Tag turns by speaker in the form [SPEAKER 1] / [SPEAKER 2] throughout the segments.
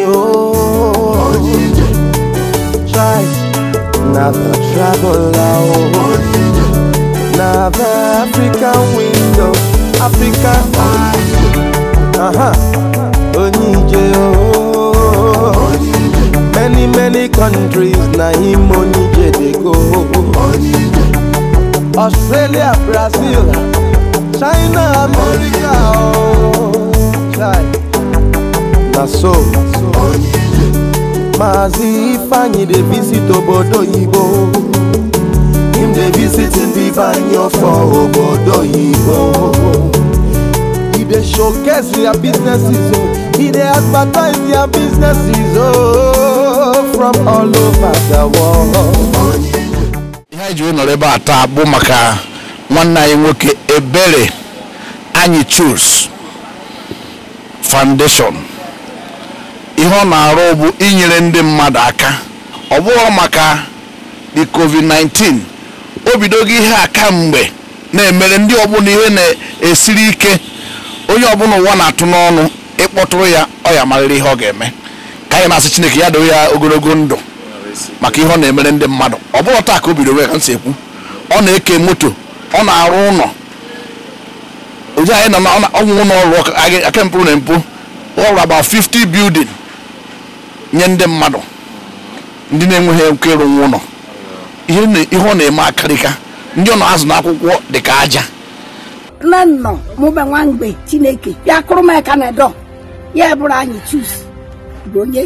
[SPEAKER 1] oh Try, another travel out. Another African window, African eyes Uh-huh, Onije, oh Many, many countries, na him Onije they go Australia, Brazil, China, America, oh Try, na so Maazị Ifeanyi dey visit obodo oyibo Him dey visit Ifeanyi for obodo oyibo He dey showcase their businesses o He dey advertise their businesses o oh, From all over the world
[SPEAKER 2] Ihe anyị nọrọ ebe a taa bụ maka nwanne anyị nwoke Ebere Anyi Chus Foundation ihe ọ na-arụ bụ inyere ndị mmadụ aka ọ bụghị maka the covid-19 o bidogo ihe a kamgbe na-emere ndị ọbụla ihe na-esiri ike onye ọbụla ụwa na-atụ n'ọnụ ịkpọtụrụ ya ọ ya marịrị ihe ọ ga-eme ka anyị na-asị Chineke ya doo ya ogologo ndụ maka ihe ọ na-emere ndị mmadụ ọ bụrụ taa ka o bidoro ka ekwu ọ na-eke moto ọ na-arụ ụlọ ozi anyị nọ na ọnwụ ụlọ ọrụ aka mpụ na mpụ ọrụ about 50 building nye ndị mmadụ ndị na-enweghị nkwa ịrụ nwa ụlọ ihe ọ na-eme akarịka ndị ọ na-azụ n'akwụkwọ dị ka aja nne nnọ mụba nwa mgbe chineke ya kụrụ m aka na dọ ya bụrụ anyị chus bụ onye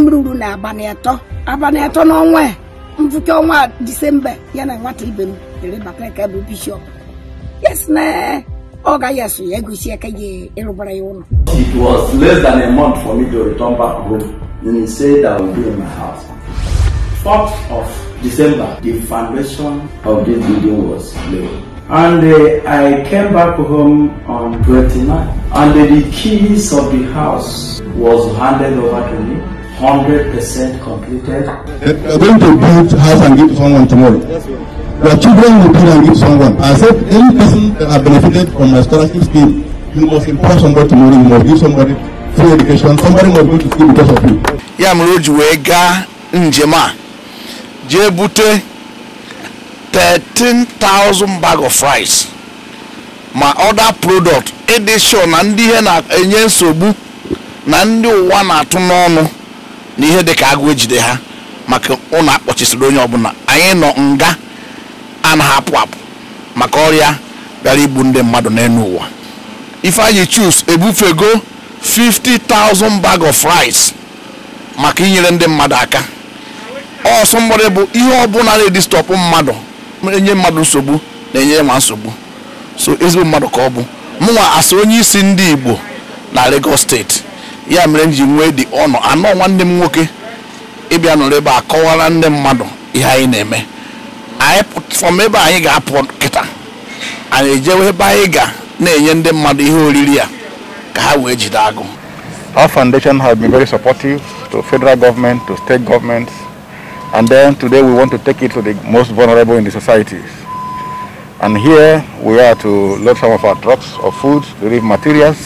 [SPEAKER 2] mruru na abalị atọ abalị atọ n'ọnwa ya mfụke ọnwa disemba ya na nwata ibe m lere bakrika bụ bishọp yes na ọ gaghị asụ ya gosi aka ya ịrụbara ya ụlọ it was less than a month
[SPEAKER 3] And he said, I will be in my house. 4th of December, the foundation of this building was laid. And uh, I came back home on 29. And uh, the keys of the house was handed over to me. 100% completed. You're going to build house and give someone
[SPEAKER 4] tomorrow. Your children will build and give someone. I said, any person that has benefited from my scholarship scheme, you must impress somebody tomorrow, you must give somebody free education somebody must go to school
[SPEAKER 2] because of you. ya mere o ji wee gaa njem a jee bute 13,000 bag of rice ma other product ịdị sure na ndị ihe na-enye nsogbu na ndị ụwa na-atụ n'ọnụ na ihe dị ka agụ ejide ha maka ụlọ akpọchisịrị onye ọbụla anyị nọ nga a na-apụ apụ maka ọrịa bịara igbu ndị mmadụ n'elu ụwa ifeanyị chus ebufego 50,000 bag of rice maka inyere ndị mmadụ aka ọsọ mgbọrị bụ ihe ọbụla na-edistọpụ mmadụ enye mmadụ nsogbu na-enye nwa nsogbu so ezigbo mmadụ ka ọ bụ mụnwa asị onye isi ndị Igbo na Lagos steeti ya mere m ji nwee dị ọnụ anọ nwanne m nwoke ịbịa nọrọ ebe a kọwara ndị mmadụ ihe anyị na-eme anyị fọm ebe anyị ga-apụ kịta anyị ejewe ebe anyị ga na-enye ndị mmadụ ihe oriri ya
[SPEAKER 4] Our foundation has been very supportive to federal government, to state governments, and then today we want to take it to the most vulnerable in the societies. And here we are to load some of our trucks of food, relief materials,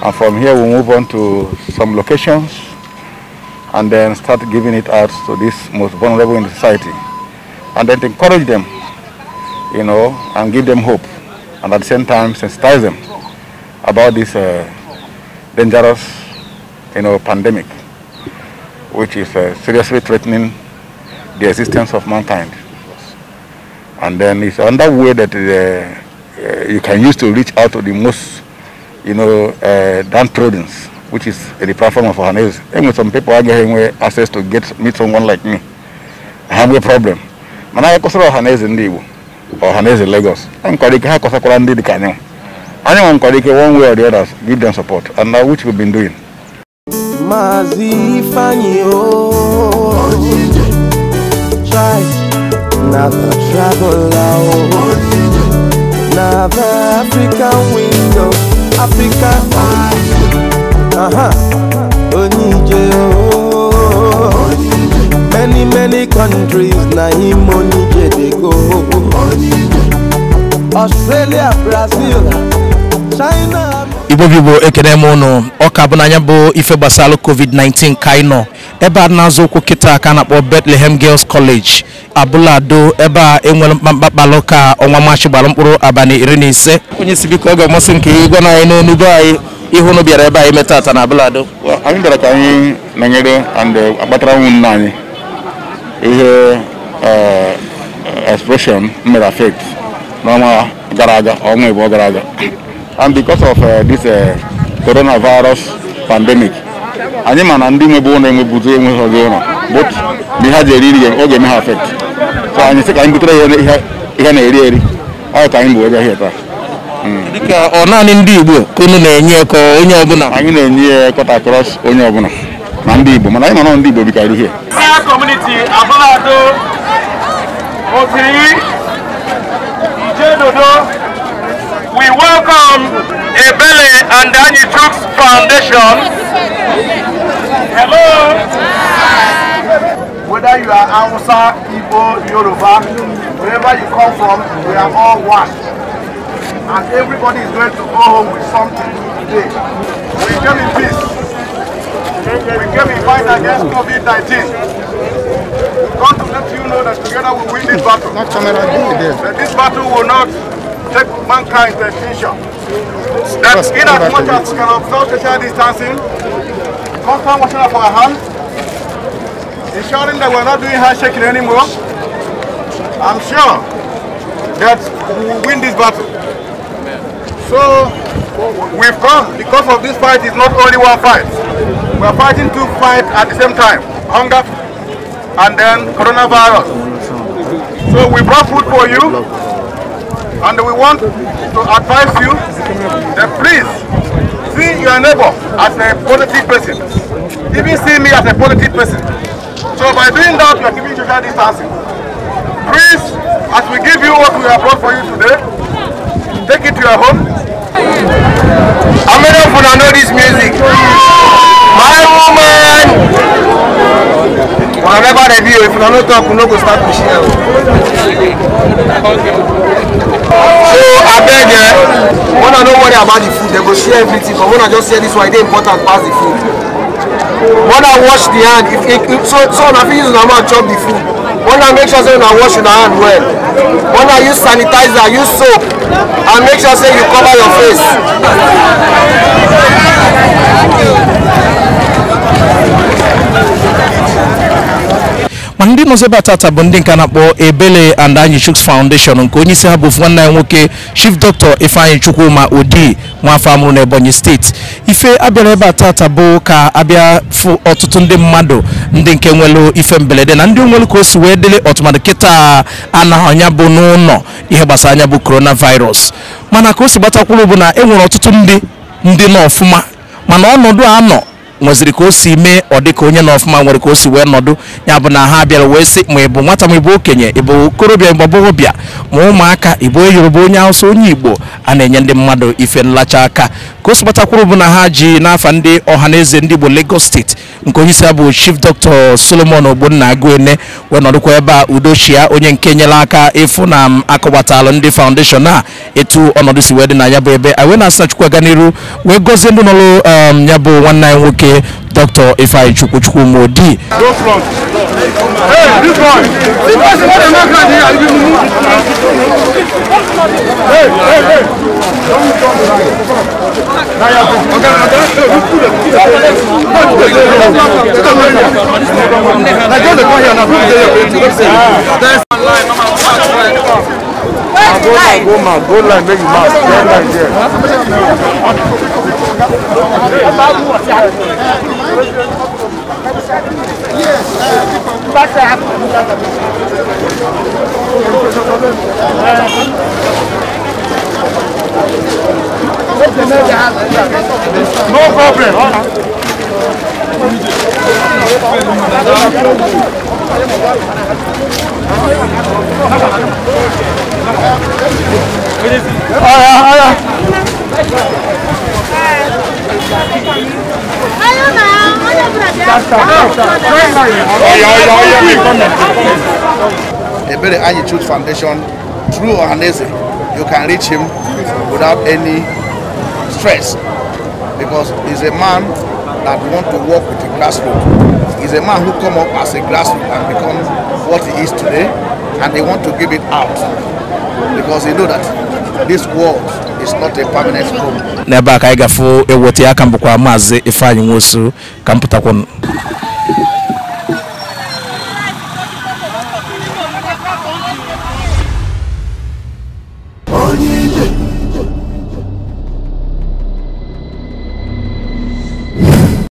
[SPEAKER 4] and from here we move on to some locations and then start giving it out to these most vulnerable in the society. And then encourage them, you know, and give them hope, and at the same time sensitize them about this uh, dangerous you know, pandemic, which is uh, seriously threatening the existence of mankind. And then it's another way that uh, uh you can use to reach out to the most, you know, uh, downtrodden, which is the platform of Ohanese. And some people are getting access to get meet someone like me. I have a problem. Mana ya kosoro Ohanese ndị Igbo, in Lagos. I'm going to go ndị dị ka anyanwụ anyone Kwadike, one way or the other, give them support, and uh, which we've been doing.
[SPEAKER 1] Uh-huh. Many, many countries, na Onije they go. Australia, Brazil.
[SPEAKER 3] ibo bigbo ekene m ụnụ ọka bụ n'anya bụ ife gbasara covid-19 ka anyị nọ ebe a na-azụ ụkwụ kịta ka a na-akpọ betlehem Girls College abụlado ebe a enwere mkpakpalụ ka ọnwa maachị gbara mkpụrụ abalị iri na ise onye isi biko ọ ga-amasị nke ịgwa na anyị n'onu be anyị ihu nụ bịara ebe anyị meta ata na abụlado anyị bịara ka
[SPEAKER 4] anyị nọnyere and uh, akpatara nwunne anyị ihe uh, uh, expression mere affect n'ọnwa gara aga ọnwa ịbụọ gara aga and because of uh, this uh, coronavirus pandemic anyị ma na ndị ụlọ ụlọ but na ihe ji eri ya, so anyị sị ka anyị butere ya ihe na-eri eri ọ ya ka anyị bụ ebe ahịa taa hmm. dịka ọ naanị ndị igbo ka unu na-enye ka onye ọbụla anyị na-enye mana anyị ndị igbo ihe
[SPEAKER 3] community
[SPEAKER 1] we welcome Ebele and Danny Troops Foundation.
[SPEAKER 2] Hello. Whether you are Hausa, Igbo, Yoruba, wherever you come from, we are all one. And everybody is
[SPEAKER 4] going to go home with something today. We came in peace. We came in fight against COVID-19 want to let you know that together we win this battle. Not this battle will not protect mankind's extinction.
[SPEAKER 3] That That's in as much as we can
[SPEAKER 4] observe social distancing, constant washing of our hands, ensuring that we're not doing handshaking anymore, I'm sure that we will win this battle. So we've come because of this fight is not only one fight. We're fighting two fights at the same time. Hunger and then coronavirus. So we brought food for you. And we want to advise you that please see your neighbor as a positive person. Even see me as a positive person. So by doing that, you are giving social distancing.
[SPEAKER 1] Please, as we give you what we have brought for you today, take it to your home. How many of you know this music? Remember the video, if you don't talk, you no go start to share. So I beg eh, when I no worry about the food, they go share everything, but when I just hear this one, e dey important pass the food. When I wash the hand, if, if, so, so na fit use una mouth chop the food. When I make sure say I wash una hand well. When I use sanitizer, use soap, and make sure say you cover your face.
[SPEAKER 3] ma ndị nọzebe tata bụ ndị nke na-akpọ Ebele and Anyi Chuks Foundation nke onye isi ha bụ nwanne ya nwoke Chief Dr. Ifeanyi Chukwuma Odi nwaafọ amụrụ n'Ebonyi steeti ife abịara ebe a tata bụ ka abịa fụ ọtụtụ ndị mmadụ ndị nke nwelu ife mberede na ndị nwelu ka o si wee dịrị ọtụmadụ kịta ana anya bụ n'ụlọ ihe gbasara anya bụ coronavirus mana ka o si gbatakwuru bụ na e nwere ọtụtụ ndị ndị nọ ọfụma mana ọnọdụ a nọ nweziri ka o si mee ọ dị ka onye nọ ọfụma nwere ka o si wee nọdụ ya bụ na ha bịara wee sị ma ị bụ nwata ma ị bụ okenye ị bụ okorobịa bụ agbọghọbịa ma ụmụaka ị bụ onye Yoruba onye Hausa onye Igbo a na-enye ndị mmadụ ife nlacha aka ka o sibatakwuru bụ na ha ji n'afa ndị ọha na eze ndị Igbo Lagos steeti nke onye isi bụ Chief Dr. Solomon Ogbonna Aguene wee nọdụkwa ebe a Udochia onye nke nyere aka ịfụ na m akọwatalụ ndị foundation a etu ọnọdụ si wee dị na ya bụ ebe anyị wee na-asị na Chukwu aga n'iru wee gọzie ndị nọrụ um, ya bụ nwanne anyị nwoke ayé Dr. Ifeanyi Chukwuchukwu Modi.
[SPEAKER 1] Hey, Go man, go line, make you mask. Go line there. Yes, that's happened. No problem. Ọ̀rọ̀
[SPEAKER 2] Ebere Ayi Truth Foundation through Ohanaeze you can reach him without any stress because he's a man that want to work with the grassroots. He's a man who come up as a grassroots and become what he is today and they want to give it out because they know that this world is not a permanent
[SPEAKER 3] home. n'ebe aka anyị gafụ ewote aka mbụkwa maazị ifeanyị nwosu ka m